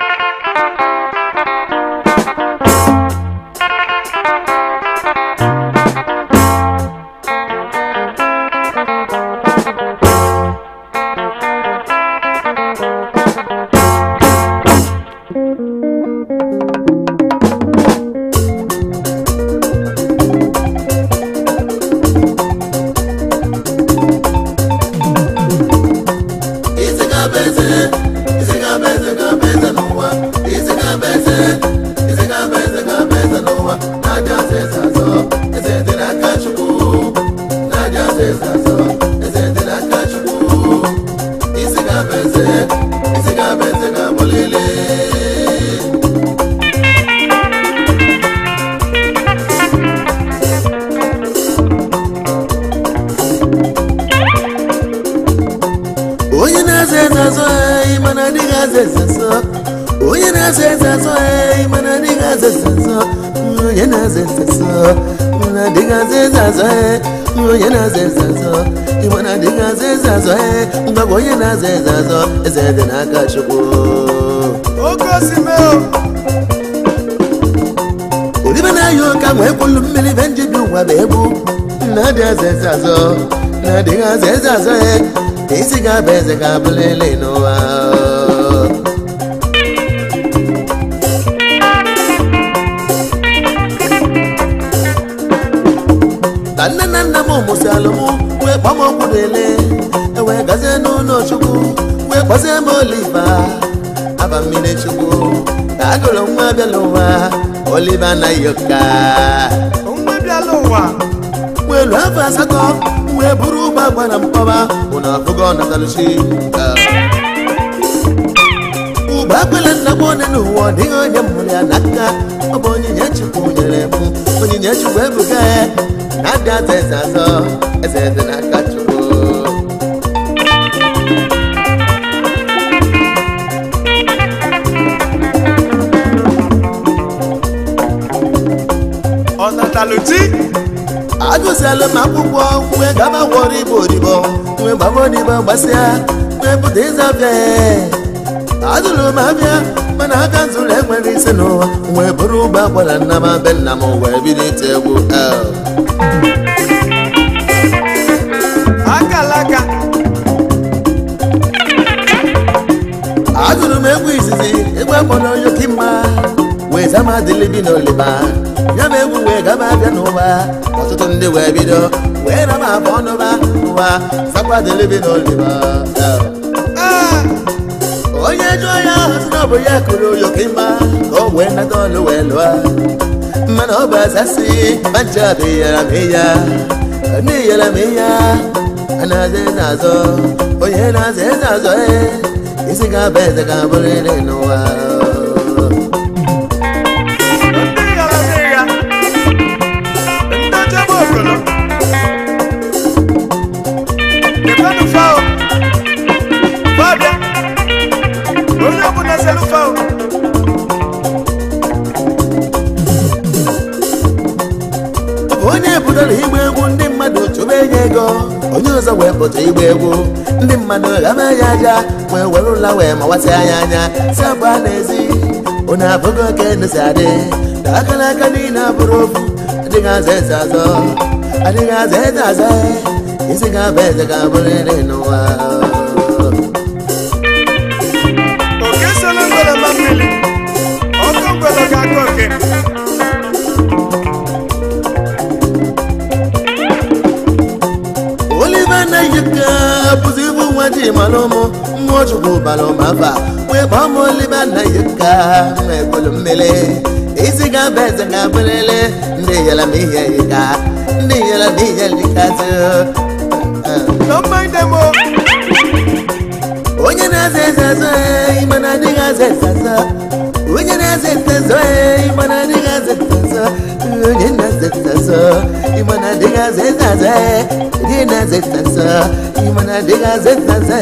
Thank you. ibe na eyi ka nwee kwolu mmiri be njibi ụwa bụ egbu na-adị eze eze azọ na-adịghị eze azọ ya e, isi ga-aba eze ga-abụla ele n'ụwa ka nne na nna m mụsị alụmụ wee kpọm ọgwụ na ewee e gazie n'ụlọ chukwu wee kpọzie m oliva aba mmiri chukwu ka agụrụ nwa abịala ụwa Oliver Nayoka mwelu afọ asatọ wee bụrụ ụgbọ agba na mkpọba bụ na afụgo natalshi ụgbọ akpala nna m onye n'ụwa ọ dịghị onye mụrụ ya n'aka ọ bụ onyinye chukwu nyere m onyinye chukwu ebuga ya na-adị aza eze azọ eze eze na aka chukwu pụtalụ agụziela m akwụkwọ nwe gabagwọrọ igbo odibo nwe gbamodibo gbasịa nwe pụta ịza bịa adụrụ m abịa mana aka zụrụ enwere isi n'ụwa wee bụrụ ụgbọ akwara nna m be nna m wee bido ite egwu eh. akalaka agụrụ m egwu izizi egwu akpọrọ yokimma wee zama dịlibi n'oliba ya ma egwu wee gaba abịa n'ụwa ọtụtụ ndị wee bido wee na ma abụ ọnụba n'ụwa sakwadelebi n'oliba ah! onye jụọ ya si na ọ bụ ya kụrụ ụyọka ịma ka o wee nata ọlụ wee lụọ mana ọ bụ asasị manja abụ iyara m ịya ndị iyara m ịya a na-aza eze azọ onye na-aza eze azọ ee isi ga-aba eze ga-abụrịrị n'ụwa onye pụtara igbe egwu ndị mmadụ chụba enye ego onye ọzọ wee pụta igbe egwu ndị mmadụ ghaba ya aja wee were ụla wee mawasị anya anya si abụ a na-ezi onye abụghị oke ndụsi adị na aka n'aka niile abụrụ ofu adịghị aza eze azọ adịghị aza eze aza isi ga-abụ eze ga-abụrịrị n'ụwa nwoke olive na-eyika bụzi ibu nwa ji mara ụmụ mmụọ chukwu bara ụmụafa wee kpọọ m olive na isi ga eze ga-abụlele ndị yela m ihe yika ndị yela onye na-aza na digazetazo imana digazetazo dinazetazo imana digazetazo dinazetazo imana digazetazo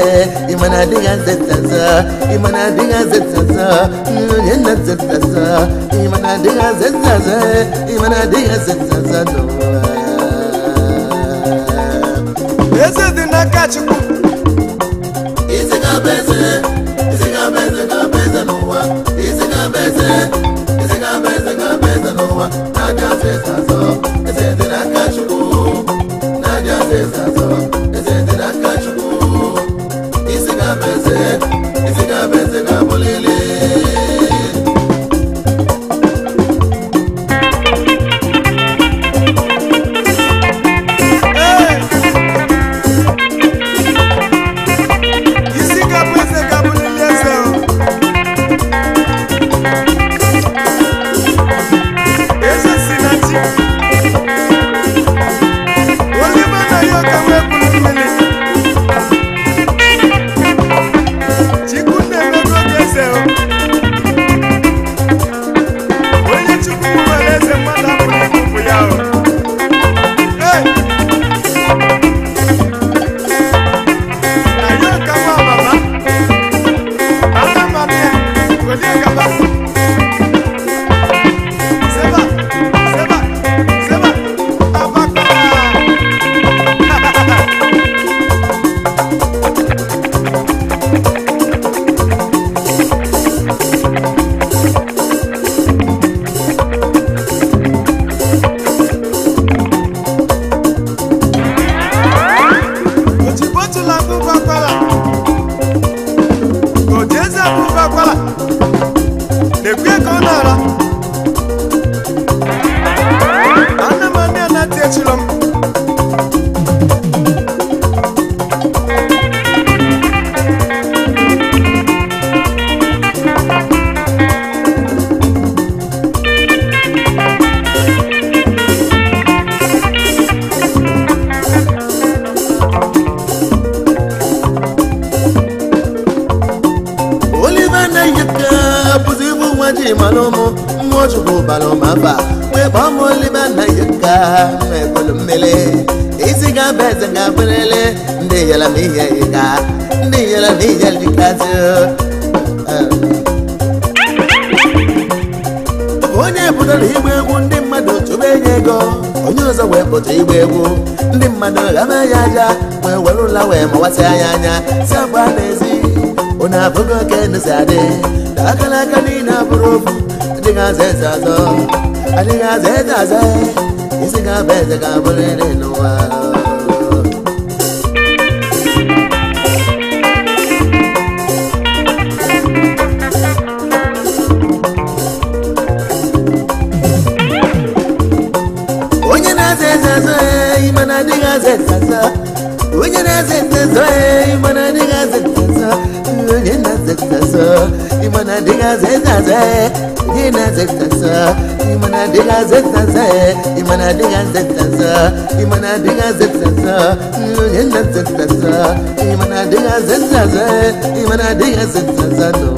imana digazetazo imana digazetazo dinazetazo imana digazetazo imana digazetazo Esse é de na cachimbo. Isso é cabeça. n'ụwa na-abịazi ịzazọ eze dị n'aka Chukwu na-abịazi ịzazọ eze dị n'aka Chukwu isi clara ya anya si agba n'ezi ụna abụghị oke ndụzi adị na akara aka niile abụrụ ofu adịghị aza eze azọ adịghị aza eze azọ isi ga-abụ eze ga-abụrịrị n'ụwa onye na-aza eze azọ ime na adịghị aza eze azọ wenye nazenzazo imana eh, ndingazenzazo wenye nazenzazo imana ndingazenzazo wenye eh. nazenzazo imana ndingazenzazo imana eh. ndingazenzazo imana ndingazenzazo wenye nazenzazo imana ndingazenzazo imana ndingazenzazo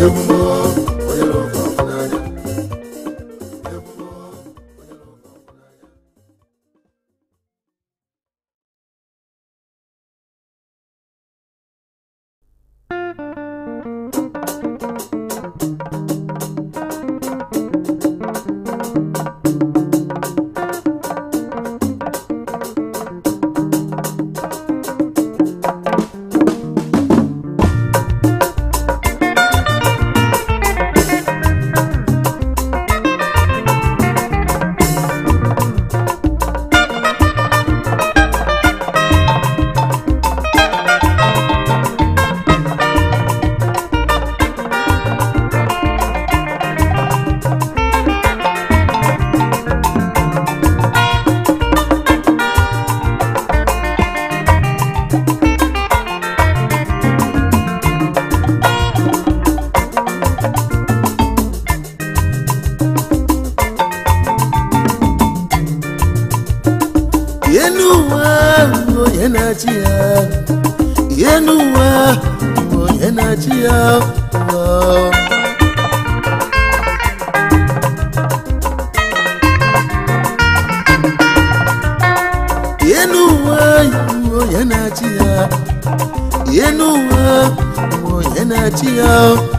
Eu vou ti o.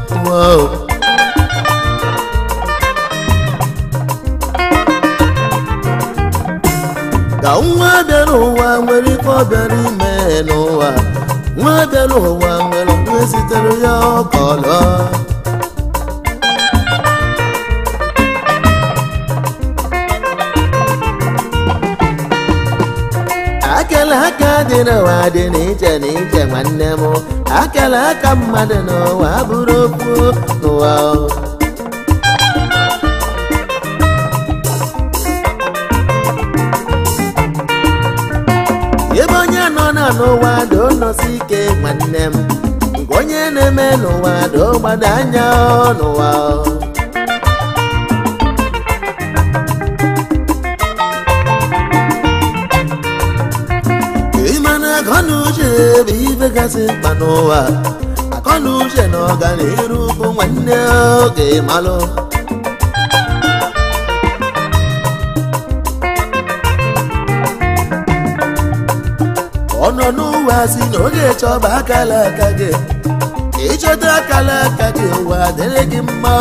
ala aka mmadụ n'ụwa bụrụ okwu n'ụwa ebe onye nọ na n'ụwa donosi ike nwanne m nke onye na-eme n'ụwa do gbado anya n'ụwa n'ụwa akọna uche na ọganiru bụ nwanne oge malụ ọnọ n'ụwa si na oge chọba akala aka gị ịchọta akala aka gị ụwa dịrị gị mma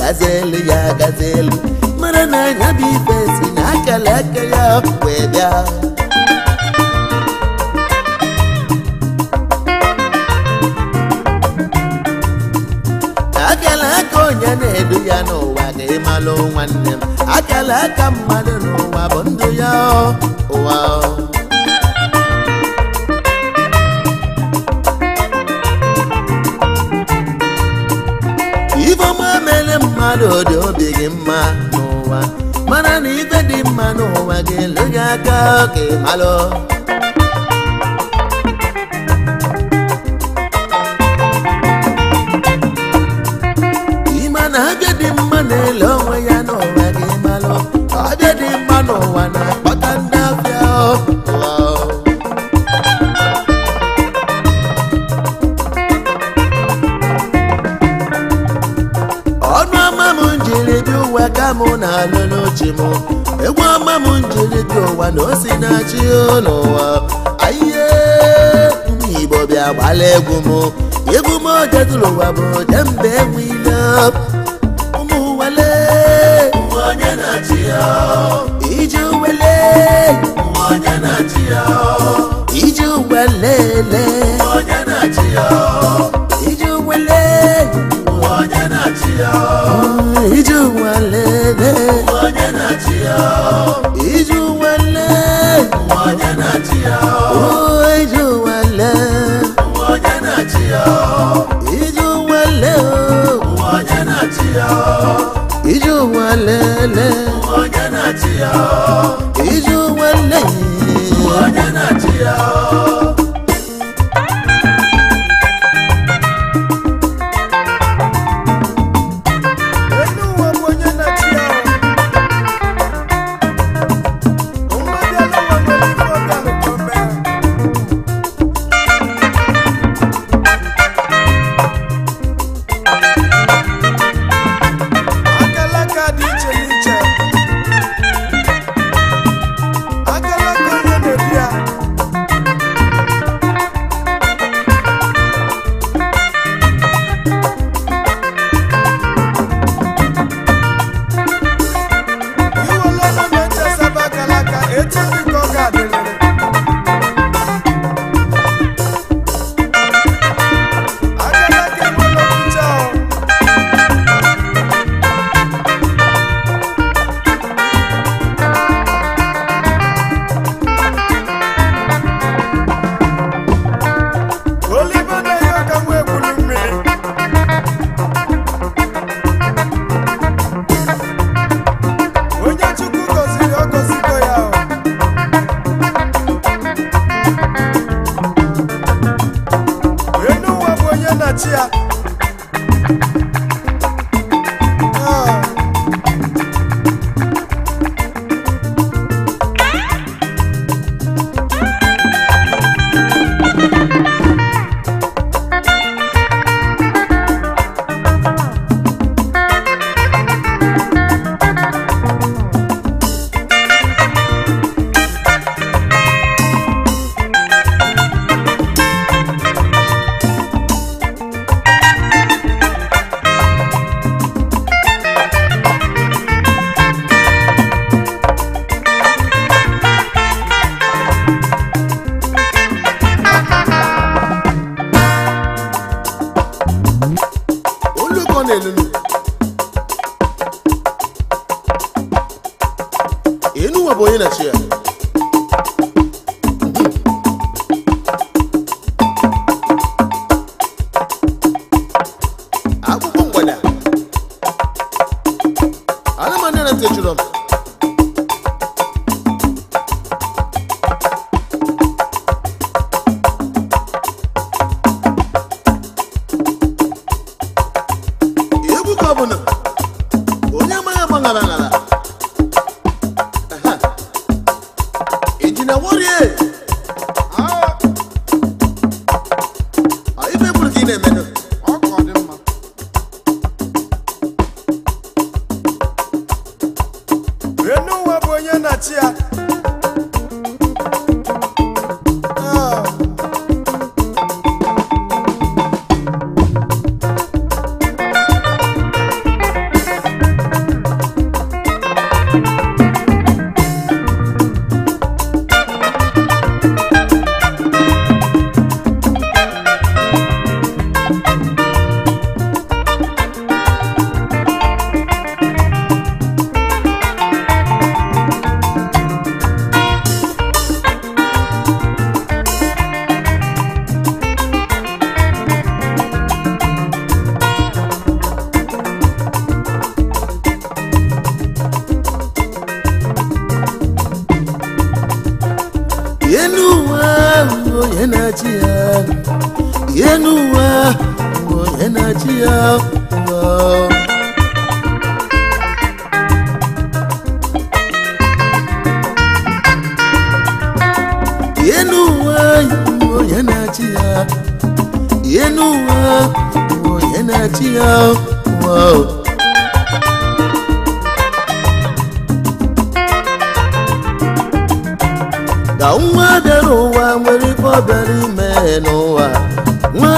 ọ elu ya elu mara na nya bụ si na akara aka ya wee a. akala aka onye na-edu ya n'ụwa ka ịmalụ nwanne m akala aka mmadụ n'ụwa bụ ndụ ya ụwa mmadụ dị obi gị mma n'ụwa mana na ibe dị mma n'ụwa ga-ele gị aka oke ị malụ ụwa ka mụ na-alụ n'oche m egwu ọma m njiri dị ụwa na o si na-achị n'ụwa ayihe igbo bịa gbala egwu m egwu m oge dụrụ ụwa bụ kemgbe enweile ụmụ na-achị ya iji wele na-achị ya iji wele onye na-achị Iju wale, iju wale, a DJ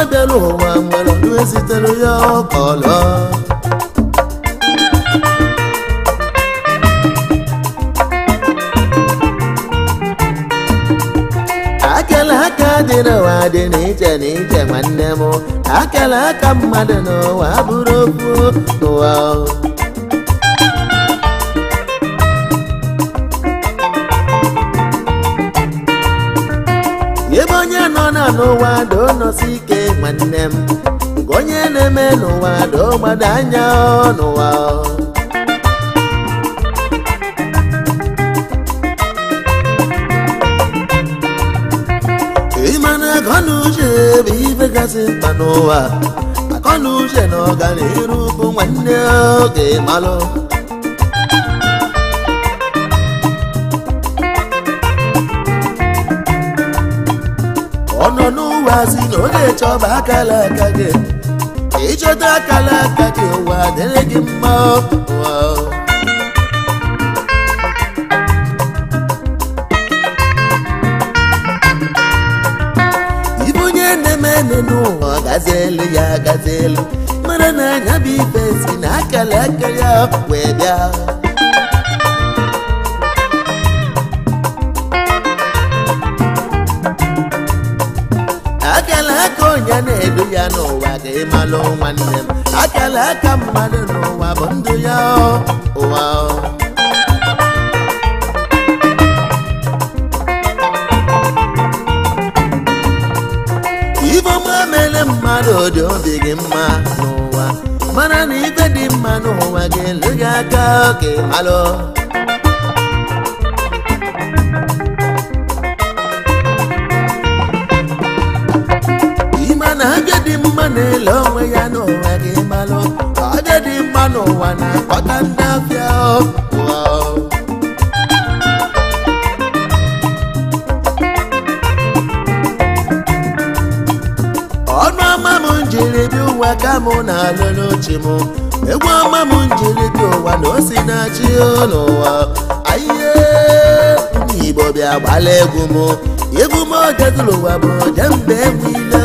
abịa n'ụwa nwere ọdụ esitere ya ọka ọla akala aka dị n'ụwa dị n'iche n'iche nwanne m akala aka mmadụ n'ụwa bụrụ okwu n'ụwa ebe onye nọ na n'ụwa do nwanne m onye na-eme n'ụwa dọgbado anya n'ụwa ịmana akọnuche bụ ife gasị mkpa n'ụwa akọnuche na ọganiru bụ nwanne oge malụ na-asị na ọ na akala aka gị ịchọta akala aka gị ụwa dịrị gị mma ibe onye na-eme ene n'ụwa gazielu ya gazielu mara na anya bụ ife si na akala aka ya wee bịa aga ịmalụ nwanne m akala aka mmadụ n'ụwa bụ ndụ ya ụwa ifeọma mere mmadụ dị obi gị mma n'ụwa mana na ibe dị mma n'ụwa gị elu gị aka ka ịmalụ ụlọ onwe ya n'ụwa gị malụ ọ dị dị mma n'ụwa na-akpọta ndị afịa ọnụ ọma m njiri bi ụwa ka mụ na-alụ n'uche m egwu ọma m njiri bi ụwa na o si na-achị n'ụwa ayiye ndị Igbo bịa gbala egwu m egwu m odezụlụwa bụ jembe enwe ile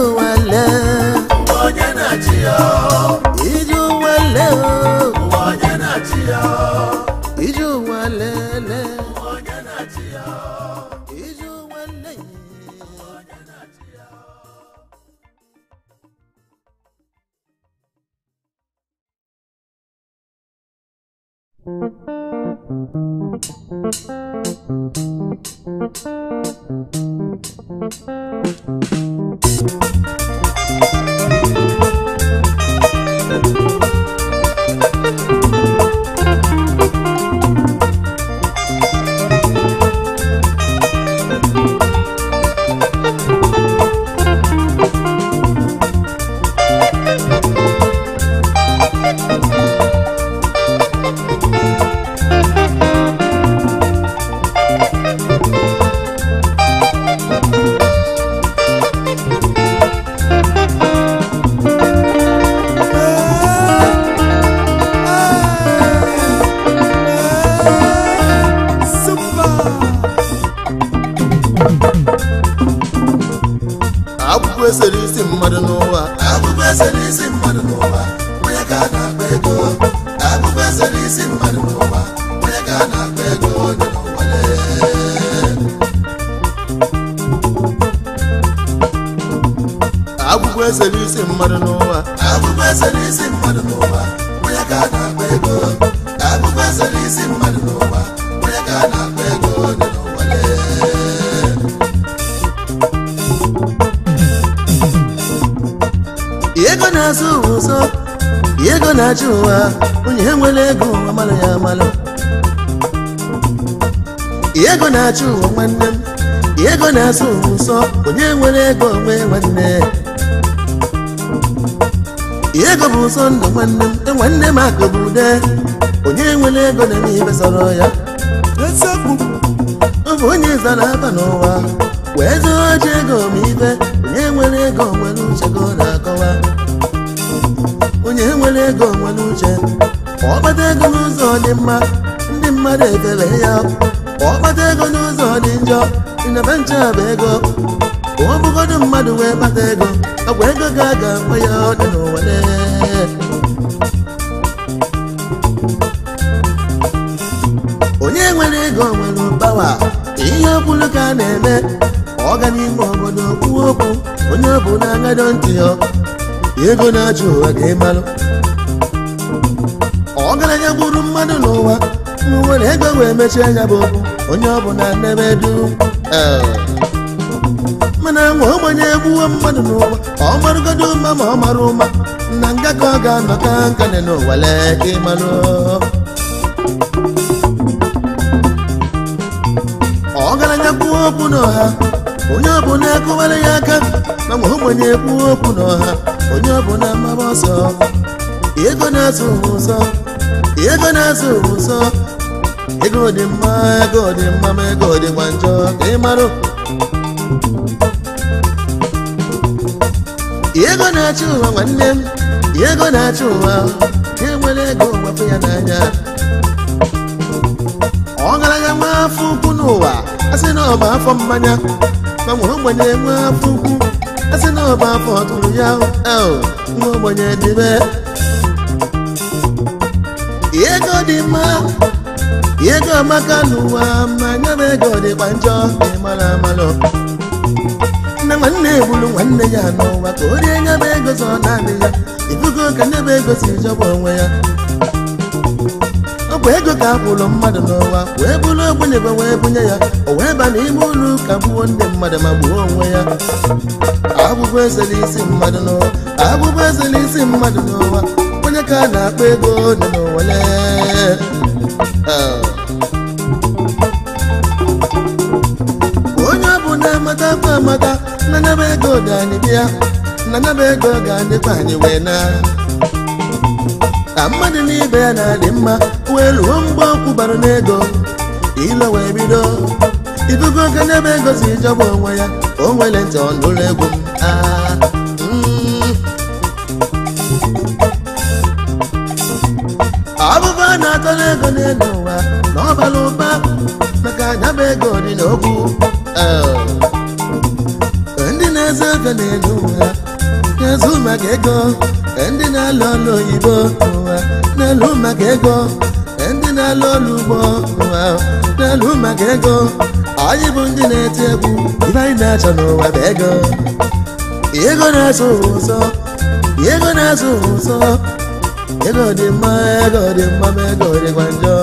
na ụwa onye nwere ego amalụ ya amalụ ego na-achị ụwa nwanne m ego na-asụ nsọ onye nwere ego onwe nwanne ego bụ ụsọ ndụ nwanne m e, nwanne m akụ bụ ude onye nwere ego na n'ibe sọrọ ya ọ onye zara aba n'ụwa wee zụọ ji ego ma ibe onye nwere ego nwere uchego nwere ego nwere uche kpata ego n'ụzọ dị mma ndị mmadụ ekele ya kpata ego n'ụzọ dị njọ ịnaba nche ego ka ọ bụgodo mmadụ wee kpata ego agwa ego ga aga nwe ya dị n'ụwa onye nwere ego nwere pawa ihe kwuru ka a na-eme ọ ga n'ime obodo kwuo okwu onye ọ bụ na-agadọ ntị ya ego na-achụ ụwa ga ịmalụ ọtụtụ mmadụ n'ụwa nwere ego wee mechie anya bụ onye ọ bụla na du eh. mana nwa ogbenye egbuwo mmadụ n'ụwa ọ marụgodo ụma ma ọ mara ụma na nga ka ọ ga-anọ ka nkane n'ụwa lee ka ịmarụ ọgaranya kwuo okwu n'ọha onye ọbụla akụwara ya aka na nwa ogbenye kwuo okwu n'ọha onye ọbụla mara ọsọ ego na-azụ ụzọ ego na-azụ ụzọ ego dị mma ego dị mma ma ego dị gwa njọ ka ị marụ ego na-achị ụwa nwanne m ego na-achị ụwa enwere ego gbapụ ya n'anya ọgaranya nwa afọ ukwu n'ụwa a sị na ọ afọ mmanya ma nwa ogbenye nwa afọ ukwu a sị na ọ bụ afọ ọtụrụ ya nwa ogbenye dịbe ego dị mma ego maka n'ụwa ma nye ego dịkwa njọ mara amalụ nne nwanne egburu nwanne ya n'ụwa ka o rie nye m ego zọ naanị ya ibugo ka nye m ego si jọba onwe ya ọ bụ ego ka a kwụrụ mmadụ n'ụwa wee bụrụ ogbenye wee bunye ya o wee ba n'ime ụlọ ụka gbuo ndị mmadụ ma gbuo onwe ya abụbụ ezela isi mmadụ n'ụwa abụbụ ezela isi mmadụ n'ụwa onye ka na akpọ ego nọ n'owele oh. onye ọ bụ na-amata kwa amata na nebe ego ga anyị bịa na nebe ego ga adịkwa anyị wee na ka mmadụ n'ibe ya na-adị mma wee ruo mgbe ọkwụ bara n'ego ilo wee bido idugo oge n'ebe ego si onwe ya o nwere ntị ụlọ egwu m ah. aa akọla ego n'elu ụwa na ọ ụba maka anyaba ego dị n'okwu ndị na-ezo ego n'elu ụwa na-ezu maka ego ndị na-alụ ọrụ oyibo ụwa na elu maka ego ndị na-alụ ọrụ ugbo ụwa na elu maka ego anyị bụ ndị na-eti egwu ibe anyị na-achọ n'ụwa bụ ego ego na-azụ ụzọ ego na-azụ ụzọ ego dị mma ego dị mma ego dịkwa njọ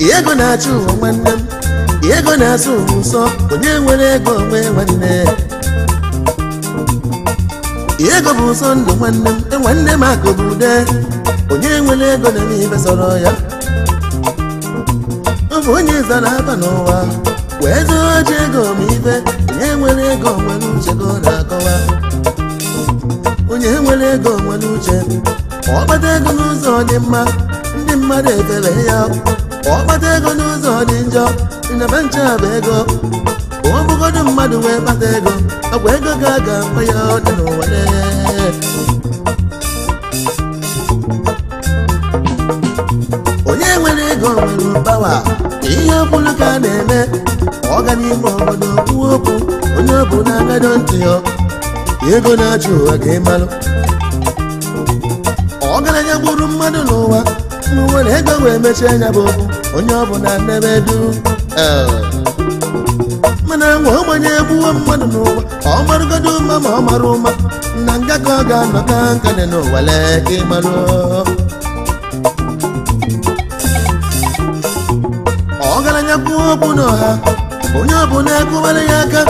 ego na-achụ ụwa nwanne m ego na-azụ ụwa nsọ onye nwere ego onwe nwanne ego bụ ụsọ ndụ nwanne m e nwanne m akụ bụ ude onye nwere ego na n'ibe sọrọ ya ọ bụ onye zara aba n'ụwa wee zụọ ji ego ma ibe onye nwere ego nwere uche ka ọ na-akọwa onye nwere ego nwere uche ọ kpata ego n'ụzọ dị mma ndị mmadụ ekele ya ọkpata ego n'ụzọ dị njọ nebe nche bụ ego ọ bụgodu mmadụ wee kpata ego ọ bụ ego ga aga mma ya ọ dị n'ụwa onye nwere ego nwere pawa ihe ọbụlụ ka a na-eme ọ ga n'ime obodo kwuo okwu onye ọ bụ na-agado ntị ya ego na-achụ ụwa ga-emalụ ọgaranya gburu mmadụ n'ụwa mgbe nwere ego wee mechie anya bụ okwu onye ọ bụ na ọbụla nnebedu eh. mana nwa ọgbanye egbuwo mmadụ n'ụwa ọ marụgodo ụma ma ọ mara ụma na nga ka ọ ga-anọ ka nkane n'ụwa lee ka ịmarụ ọgaranya kwuo okwu n'ọha onye ọ bụ na ekwuwara ya aka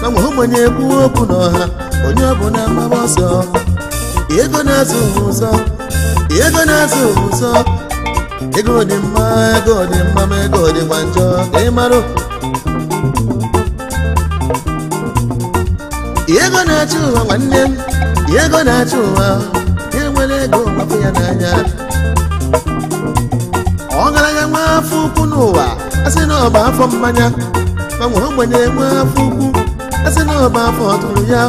na nwa ogbenye ekwuo okwu n'ọha onye ọbụla maba ọsọ ego na-azụ ụzọ ego na-azụ ụzọ ego dị mma ego dị mma ma ego dịkwa njọ ka ị marụ ego na-achị ụwa nwanne m ego na-achị ụwa enwere ego gbapụ ya n'anya ọgaranya nwa afọ ukwu n'ụwa a sị na ọba afọ mmanya ma nwa ogbenye nwa afọ ukwu a sị na ọba afọ ọtụrụ ya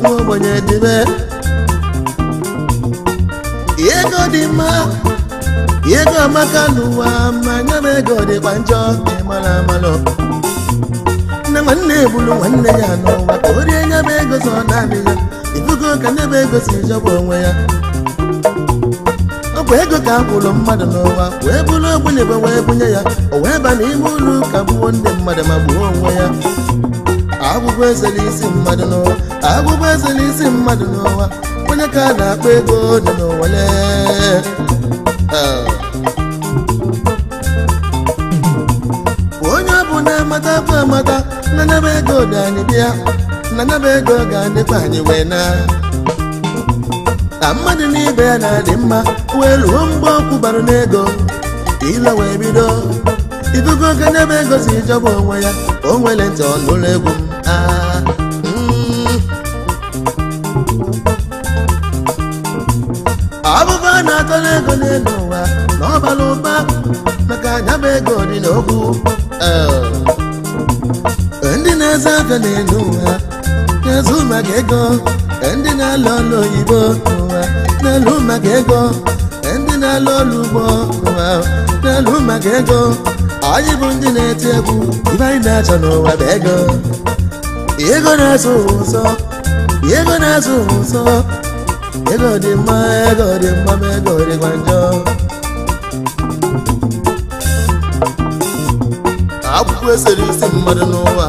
nwa ogbenye dịbe ego dị mma ego amaka n'ụwa ma nyaba ego dịkwa njọ ịmara amalụ nne nwanne ebulu nwanne ya n'ụwa ka o rie nya ego so naanị ya ibugo ka nne ego si jọba onwe ya ọ bụ ego ka a kwụrụ mmadụ n'ụwa wee bụrụ ogbenye wee bunye ya o wee ba n'ime ụlọ ụka gbuo ndị mmadụ ma gbuo onwe ya agwụgwọ eze isi mmadụ n'ụwa agwụgwọ eze isi mmadụ n'ụwa onye ka a na-akpọ ego dị n'ụwa lee ah. mata bụ amata na nyebe ego ga anyị bịa na nyebe ego ga adịkwa anyị wee na na mmadụ n'ibe ya na-adị mma wee ruo mgbe ọkwụ bara n'ego ile wee bido idugo oge ah, mm. nyebe ego si jọba onwe ya o nwere ntị egwu m ọbụba na-atọ n'ego n'elu ụwa na ọ ụba maka anyaba ego dị n'okwu eh. eze abịa n'elu ụwa maka ego e ndị na-alụ ọlụ oyibo n'elu maka ego e ndị na-alụ ọlụ ugbo ụwa n'elu maka ego anyị bụ ndị na-eti egwu ibe anyị na-achọ n'ụwa bụ ego ego na-azụ ụzọ ego na-azụ dị mma ego dị mma ma ego dịkwa njọ akwụkwọ esere isi mmadụ n'ụwa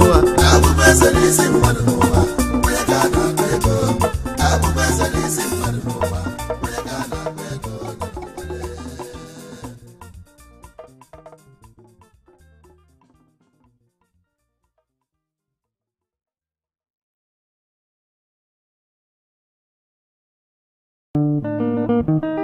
Thank you.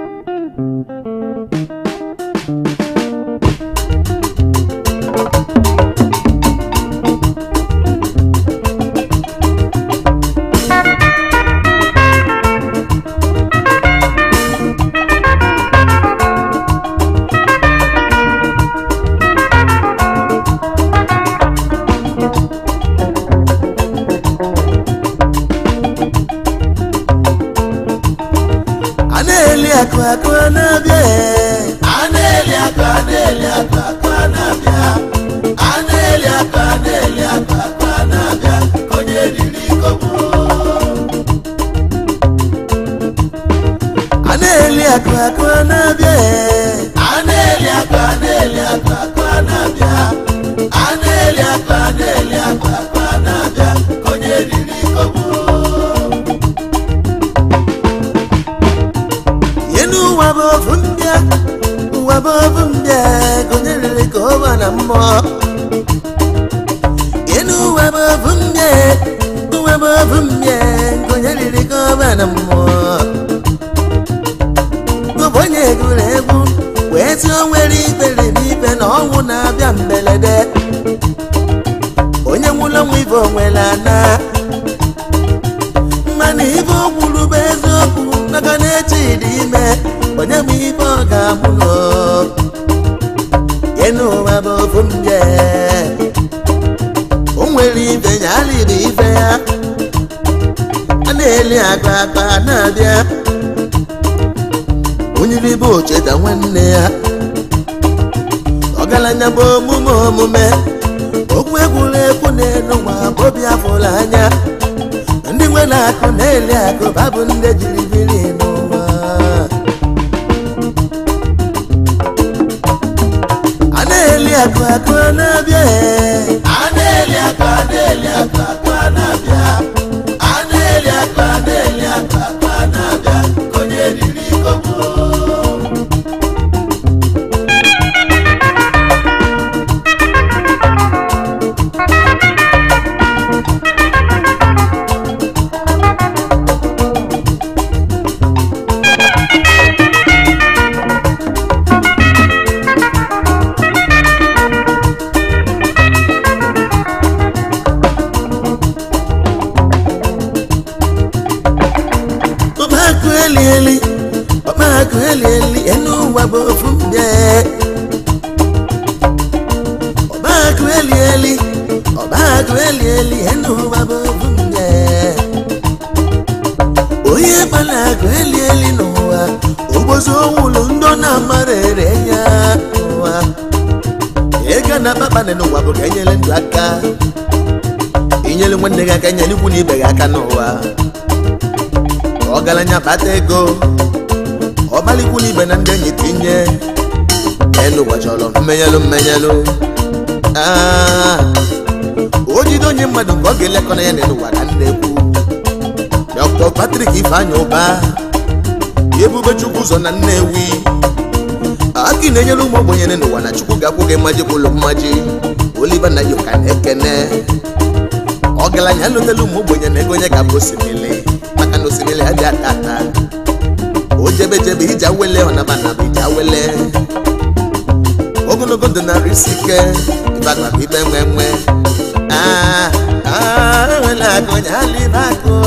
webe bụ mbịa gụnyere ka na mmụọ enu webe ovu mbịa mbịa ka bụ na mmụọ onye egwu wee nwere ikpere na ọnwụ na-abịa mberede onye nwụrụ nwa ibe onwere ana mana ibu bụ eziokwu maka na eche dị ime onye bụ ibe ọ ga-amụ n'enu ụwa bụ ofu nje o nwere ibe ya alịrị ibe ya a na-eli akpa akpa na-abịa onyiri bụ ocheta nwanne ya ọgaranya bụ omume omume okwu egwuregwu na-elu nwa obi anya ndị nwere akụ na-eli akụ babụ ndị jiri biri akọ akọ náà bẹ́ẹ̀. adéèlé akọ adéèlé akọ akọ. ndekọ na ya na n'ụwa na nnekwu Dr. Patrick Ifeanyi Ụba ebube chukwu ụzọ na Nnewi aki na-enyere ụmụ ogbenye n'ụwa na chukwu ga-akwụ gị mmaji ụlọ mmaji na yoka na ekene ọgaranya alụtela ụmụ ogbenye na ego onye ga-abụ osimiri maka na osimiri adịghị ata ata o jebejebe iji awele ọnabanaba iji wele ogologo ndụ narị isi ike ịbagba ibe nwe nwe aa ah, wela kojali nako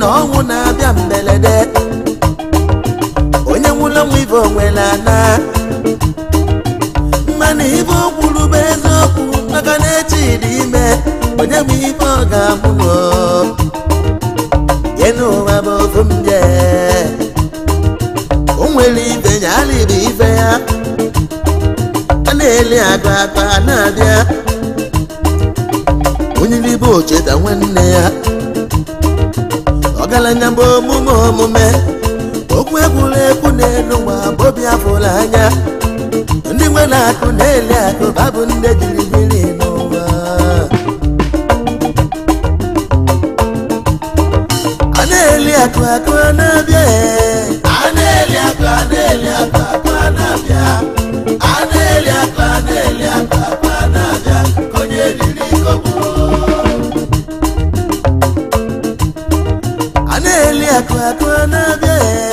na ọnwụ na-abịa mberede onye nwụla nwa ibe onwere ana mmanụ ibe o bụ eziokwu maka na echi ime onye bụ ibe ọ ga-amụ ọ. n'ụwa bụ ofu m je o nwere ibe ya alịbụ ibe ya a na-eli agba akpa na-abịa onye bụ nwanne ya ọgaranya bụ omume omume okwu egwuregwu n'elu ụwa bụ obi afụrụ anya ndị nwe akụ na-eli akụ babụ ndị jiri biri n'ụwa a na-eli akụ akụ na-abịa a na-eli akụ a na-eli akụ akụ na-abịa kwa kwa na